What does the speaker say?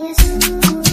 Yes.